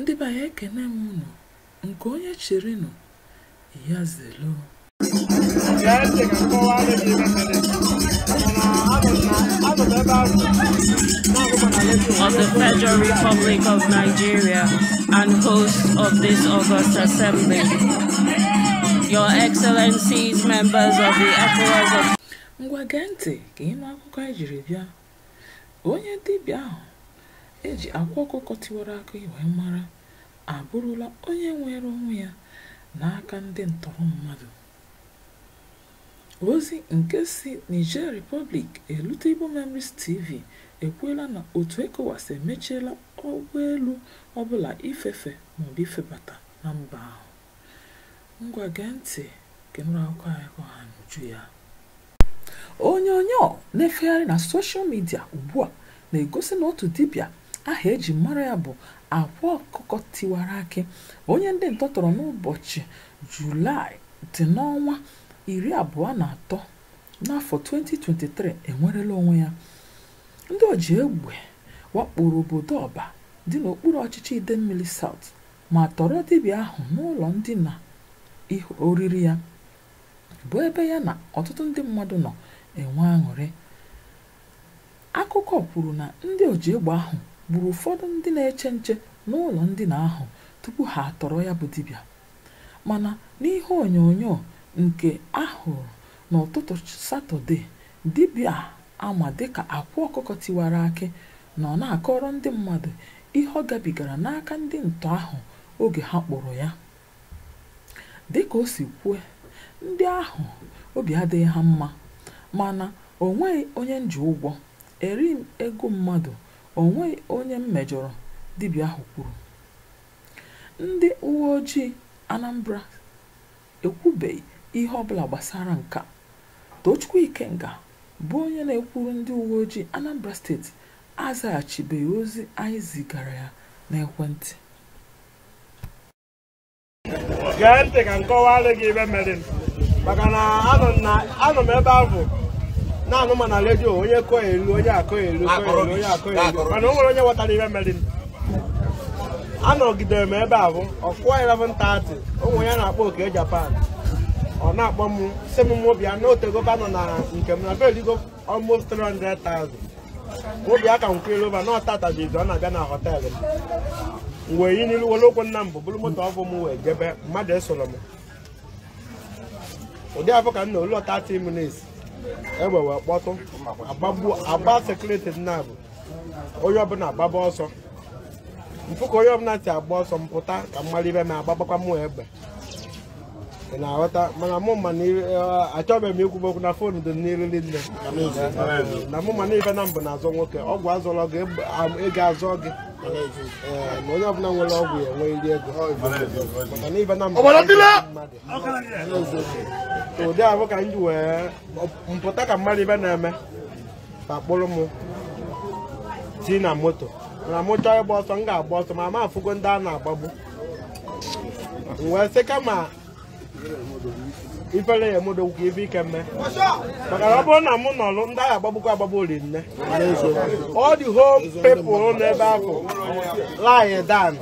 ndị be anyị ekene m unu nke onye chịrị nụ ya zelo of the Federal Republic of Nigeria and host of this August Assembly. Your Excellencies, members of the ECOWAS of... Ngwa gee ntị ka ịnụ akụkọ ejiri bịa. Onye dibịa ahụ eji akwa ọkụkọ tiwara aka wee mara abụrụla onye nwere onwe ya n'aka ndị ntọrọ mmadụ ozi nke si Niger Republic elute Igbo Memories TV ekwuola na otu ECOWAS emechiela ụgbọelu ọbụla ifefe maọbụ ifebata na mba ahụ ngwa ntị kenụrụ aka na-efegharị na soshal midia ugbu a na-egosi na otu dibia. aha eji mara ya bụ akwa ọkụkọ tiwara akị onye ndị ntọ tọrọ n'ụbọchị julaị dị n'ọnwa iri abụọ na atọ n'afọ 2023 enwerela onwe ya ndị oji egbe wakporo obodo ọba dị n'okpuru ọchịchị idemmili saut ma tọrọ dibịa ahụ n'ụlọ ndina oriri ya bụ ebe ya na ọtụtụ ndị mmadụ nọ enwe aṅụrị akụkọ kwuru na ndị oji egbe ahụ gburu ụfọdụ ndị na-eche nche n'ụlọ ndina ahụ tupu ha atọrọ ya bụ dibịa mana n'ihe onyonyo nke ahụrụ n'ụtụtụ satọde dibịa ama dịka akwụ ọkụkọ tiwara akị nọ na-akọrọ ndị mmadụ ihe ọ gabigara n'aka ndị ntọ ahụ oge ha kpụrụ ya dịka o si kwue ndị ahụ obi adịghị ha mma mana o nweghị onye nji ụgwọ eri ego mmadụ o onye m mejọrọ dibịa ahụ kwuru ndị uwe ojii anambra ekwubeghị ihe ọbụla gbasara nke dochukwu tochukwu ikenga bụ onye na-ekwuru ndị uwe ojii anambra steeti azaghachibeghị ozi anyị zigara ya n'ekwentị gee ntị ka nkọwa kọwara gị ibe mere maka na anọ m ebe ahụ na-anụ ma na redio onye kọ elu onye akọ elu onye akọ elu mana o nwere onye ghọtara ihe mere anọgidere m ebe a bụ ọkụwa 11:30 ụmụ ya na-akpọ oke japan ọ na-akpọ m si m mobia na otegoba nọ na nke m na bedigo almost 300,000 a ka nkwelova na ọtata jizi ọ na-abịa na họtelụ m wee yi n'ilu were okwu nna m bụ bụrụ moto ọbụ m wee jebe mmadụ esoro m ụdị afọ ka m na olu 30 egbe wee kpọtụ agba sekuriti nna bụ onye ọbụla agbaba ọsọ mpụ ka onye ọbụla si agba ọsọ mpụta ka mmadụ ibe m agbabakwa mụ egbe ị na-aghọta mana mụ ma eh, achọbeghị m ikwube okwu na fon dị n'iriri nne na mụ ma na ife na mbụ na-azọ nwoke ọgwụ azọrọ gị ego azọ gị ma eh, onye ọbụla nwere ọgwụ ya enwe iri ego maka na ife na mbụ mmadụ ụdị ahụ ka m wee mpụta ka mmadụ ibe na-eme akpọrọ kpụrụ m si na moto na m chọọ ịgba ọsọ m ga-agba ọsọ ma ma ndị a na-agbagbu wee sị kama ifere ya emodogwu ife ike mme maka na ọ bụrụ na m nọrụ ndị agha agbagbukwa agbagbu ori nne ọ dị home people n'ebe ahụ lie down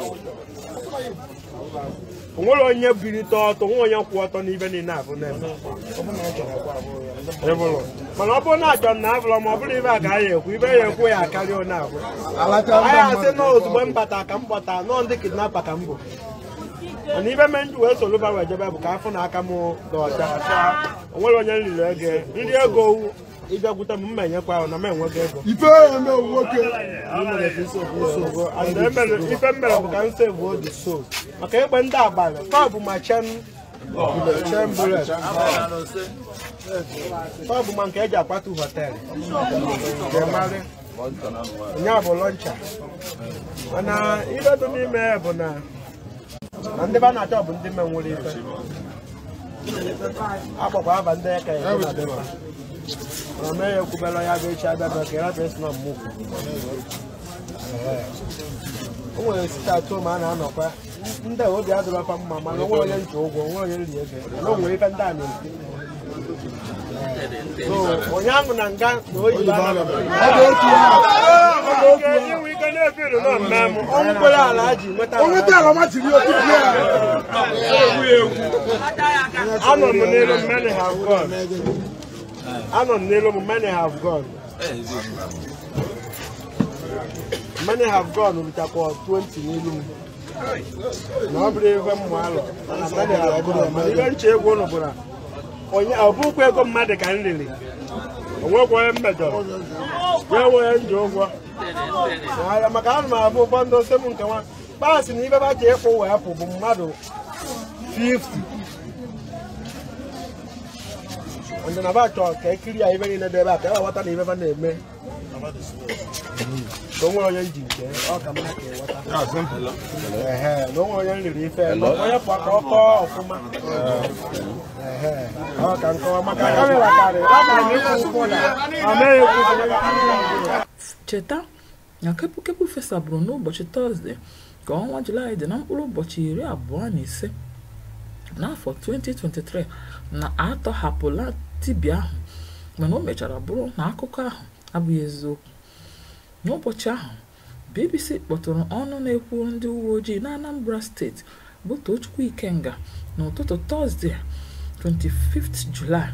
onwere onye bilite ọtọ nwe onye kwụ ọtọ n'ibe niile abụ mana ọ bụrụ na achọ na abụrọ ma ọ bụrụ ibe a ka anyị ekwu ibe ya ekwu ya akarịa onye abụ anyị asị na ozugbo m ka m gbata nọọ ndị kidnapa ka m bụ mana ibe me nji wee soro wee jebe bụ ka afọ na aka m dị ọcha onwere onye m riri ego nri ego ịbịakwute m mma enyekwa ahụ na m enwego ego ife mere bụ ka m sevu oge so maka egbe ndị abalị taa ma chen taa bụ ma nke eji akwatu họteelụ nya bụ lọncha mana iledo n'ime ya bụ na na ndị be a na-achọ bụ ndị menwere ife agbakwa aba ndị aka ya ya echi abịa na mmụọ o nwere site atụ ma a anọkwa ndị obi mma mana onwe onye nche ụgwọ onwe onye nri ego na ndị a na-esi onye ahụ na nga na oyi ala ji anọ m n'elu anọ n'elu m many have gone eh, many have gone bitakwa 20 n'elu m na ọ bụrụ ebe m alọ ihe nche egwu ọ ego mmadụ ka m riri onwekwa onye wee ahịa maka m abụ ụgbọ ndị ose nke nwa kpaasị na ibe ba ka ịkwụ wee pụ bụ mmadụ 50 nde na batho ka ekiri a ibe ni nde ba ka wata ni ibe ba na-eme na onwere onye nji nke ọ mma ka ịwata na onwere onye nriri ife onye pụọ ka ọ ọfụma ọ nkọwa maka ka na amaghị ekwu cheta na n'ụbọchị tọzdee ka ọnwa julaị dị na mkpụrụ ụbọchị iri abụọ na ise n'afọ 2023 na atọhapụla dibịa ahụ mana o mechara bụrụ na akụkọ ahụ abụghị eziokwu n'ụbọchị ahụ BBC kpọtụrụ ọnụ na-ekwu ndị uwe ojii na Anambra steeti bụ Tochukwu Ikenga n'ụtụtụ Tọzdee 25 Julaị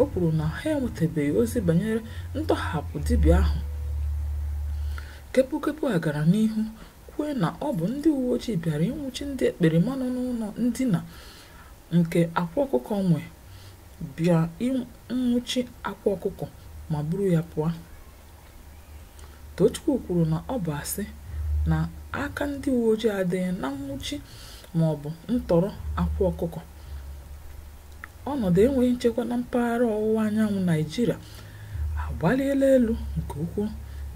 o kwuru na ha enwetabeghị ozi banyere ntọhapụ dibịa ahụ kepukepu a gara n'ihu kwue na ọ bụ ndị uwe ojii bịara ịnwụchi ndị ekperima nọ n'ụlọ ndina nke akwa ọkụkọ nwe bịa nwụchi akwa ọkụkọ ma buru ya pụọ. Tochukwu kwuru na ọ bụ asị na aka ndị uwe ojii adịghị na nnwụchi maọbụ ntọrọ akwa ọkụkọ. Ọnọdụ enweghị nchekwa na mpaghara ọwụwa anyanwụ Naịjirịa agbaliela elu nke ukwuu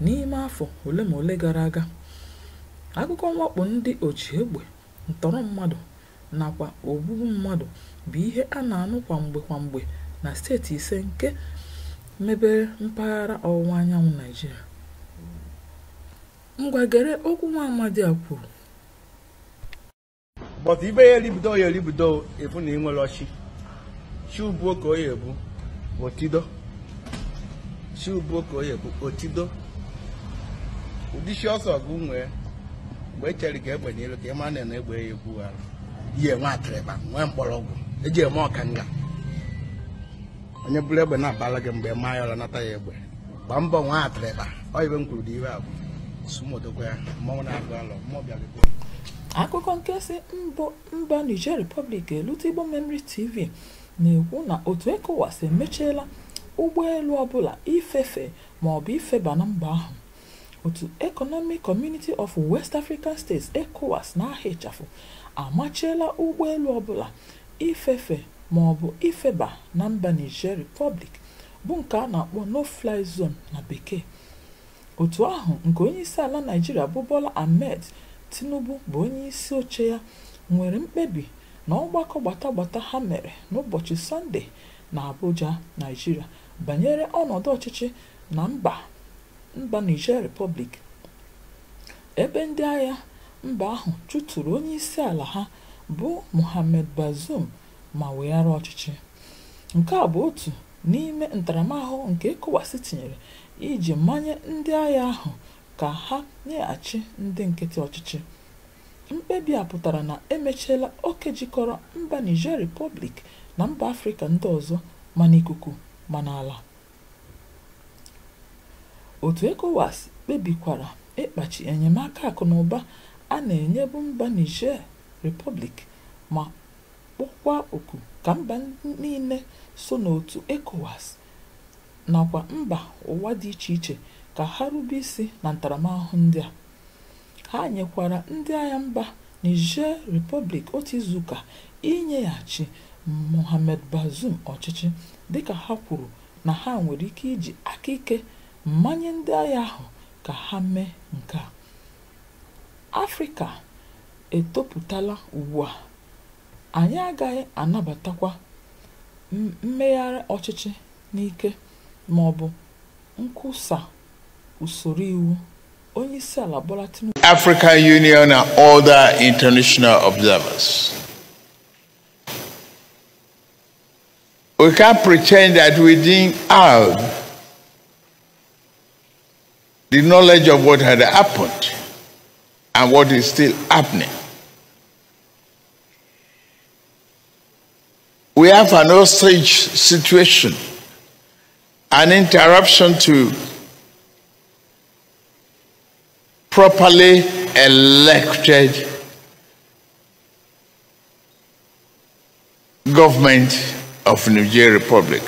n'ime afọ ole ma ole gara aga. Akụkọ mwakpo ndị ochie egbe ntọrọ mmadụ nakwa ogbugbu mmadụ bụ ihe a na-anụ kwamgbe kwamgbe na steeti ise nke mebere mpaghara ọwụwa anyanwụ naijiria ngwagere okwu nwa amadi a kwuru but ibe ya elibido ya elibido efu na ịnwere ọchị chiubuo ka oya ebu otido chiubuo ka otido ọsọ gị nwee mgbe echere ka egbenyelu ka ị na egbe ya egbu ihe nwa atịrịba nwee mgbọrọgwụ eji eme ọkanga onye bụrụ egbe na-abala gị mgbe ma ya ọra nata ya egbe gbaa mbọ nwa atịrịba ọ ibe m kwuru dị iwe abụ sumodokwa ya mmọnwụ na-agụ alọ mmụọ bịara akụkọ nkesị mba niger republic elute igbo memory tv na-ekwu na otu ECOWAS emechiela ụgbọelu ọbụla ifefe maọbụ ifeba na mba ahụ otu Economic Community of West African States ECOWAS na aha ịchafụ amachiela ụgbọelu ọbụla ifefe maọbụ ifeba na mba Niger Republic bụ nke a na-akpọ no-fly zone na bekee otu ahụ nke onye isi ala Naijiria bụ Bola Ahmed Tinubu bụ onye isi oche ya nwere mkpebi na ọgbakọ gbatagbata ha mere n'ụbọchị Sọnde na Abuja Naijiria banyere ọnọdụ ọchịchị na mba mba Niger Republic ebe ndị agha mba ahụ chụtụrụ isi ala ha bụ Mohamed Bazoum ma weghara ọchịchị nke a bụ otu n'ime ntaramahụhụ nke ECOWAS tinyere iji manye ndị agha ahụ ka ha nyeghachi ndị nkịtị ọchịchị mkpebi a pụtara na emechiela oke jikọrọ mba Niger Republic na mba Afrịka ndị ọzọ ma n'ikuku ma n'ala otu ECOWAS kpebikwara ịkpachi enyemaka akụnụba a na-enyebu mba Niger Republic ma kpọkwaa oku ka mba niile so n'otu ekowas nakwa mba ụwa dị iche iche ka ha rube isi na ntaramahụhụ ndị a. Ha nyekwara ndị agha mba Niger Republic otu izuụka inyeghachi Mohamed bazum ọchịchị dịka ha kwuru na ha nwere ike iji aka ike mmanye ndị agha ahụ ka ha mee nke a afrịka etopụtala ugbu a anyị agaghị anabatakwa mmegharị ọchịchị n'ike ma ọ bụ nkwusa usoro iwu onyeisi ala Bola Tinubu African Union na other international observers we can pretend that we didn't have the knowledge of what had happened and what is still happening. We have an hostage situation, an interruption to properly elected government of Niger Republic.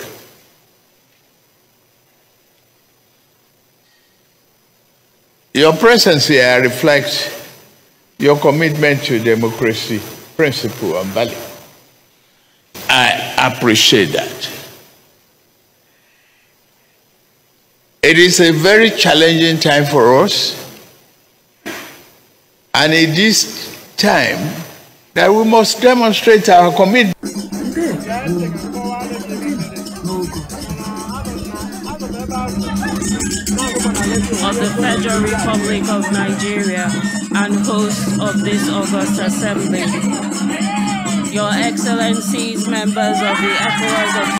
Your presence here reflects your commitment to democracy, principle, and value. I appreciate that. It is a very challenging time for us, and it is time that we must demonstrate our commitment. of the Federal Republic of Nigeria and host of this August Assembly. Your Excellencies, members of the ECOWAS